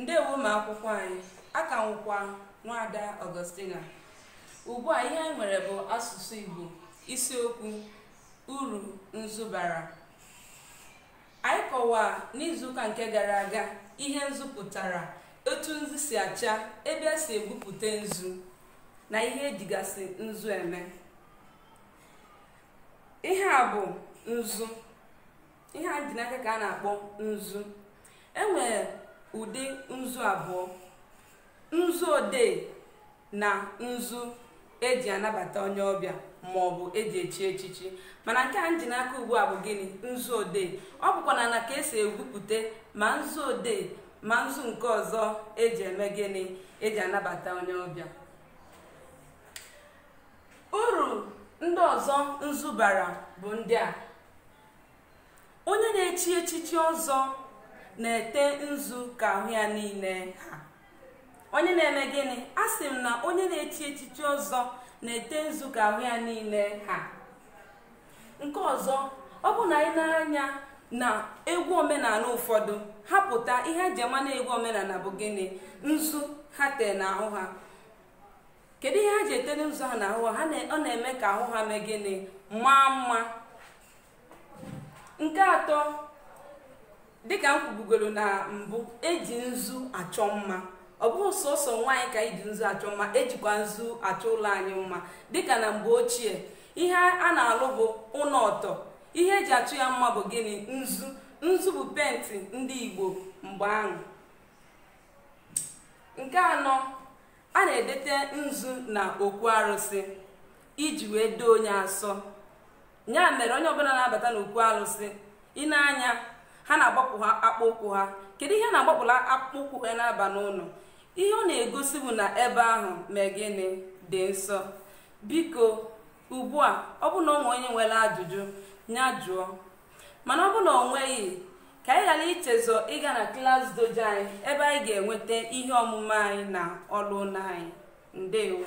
ndewo ma akwụkwọ anyị aka nwụkwa nwada ọgọstina ugbu a ihe anyị nwere bụ asụsụ igbo isiokwu uru nzubara anyị kọwaa n'izuụka nke gara aga ihe nzu pụtara etu nzu si acha ebe e si egwupụta nzu na ihe ejigasị nzu eme ihe a bụ nzu ihe a dị n'aka ka a na-akpọ nzu enwere ụdị nzu abụọ nzu odee na nzu eji anabata onye ọbịa ma ọ bụ eji echi echichi mana nke a ji n'aka ugbu a bụ gịnị nzu odee ọ bụkwa na ka esi egwupụta ma nzu odee ma nzu nke ọzọ eji eme gịnị eji anabata onye ọbịa uru ndị ọzọ nzu bara bụ ndị a onye na-echi echichi ọzọ na-ete nzu ka ahụ ya niile ha onye na-eme gịnị a sị m na onye na-echi echichi ọzọ na-ete nzu ka ahụ ya niile ha nke ọzọ ọ bụ na anyị nara anya na egwu omenala ụfọdụ ha pụta ihe ji ama na egwu omenala bụ gịnị nzu ha tee ahụ ha kedu ihe ha ji etere nzu ha n'ahụ ha ọ na-eme ka ahụ ha mee gịnị maa mma nke atọ dịka m kwubugoro na mbụ eji nzu achọ mma ọ bụghị sọsọ nwaanyị ka iji e nzu achọ mma ejikwa nzu achọ ụlọ anyị mma dịka na mgbe ochie ihe a na-alụ bụ ụlọ ọtọ ihe eji achụ ya mma bụ gịnị nzu nzu bụ penti ndị igbo mgbe ahụ nke anọ a na-edete nzu na okwu arụsị iji wee doo onye asọ ya mere onye ọbụla na-abata n'okwu arụsị ị na-anya ha na-agbapụ ha ụkwụ ha kedu ihe na-agbapụla akpụkpọ ụkwụ ha na-aba n'ụlọ ihe ọ na-egosi bụ na ebe ahụ mee gịnị dị nsọ biko ugbu a ọ bụ na ọ nwe onye nwere ajụjụ nya jụọ mana ọ bụ na ọ nweghị ka anyị ghara ichezọ ịga na klas dojo anyị ebe anyị ga-enweta ihe ọmụma anyị na ọlụna anyị ndewo